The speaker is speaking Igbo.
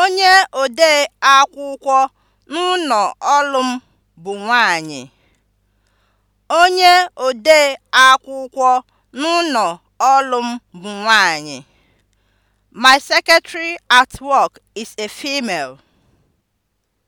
Onye odee akwụkwọ n'ụlọ ọrụ m bụ nwanyị. bụ nwanyị. My secretary at work is a female.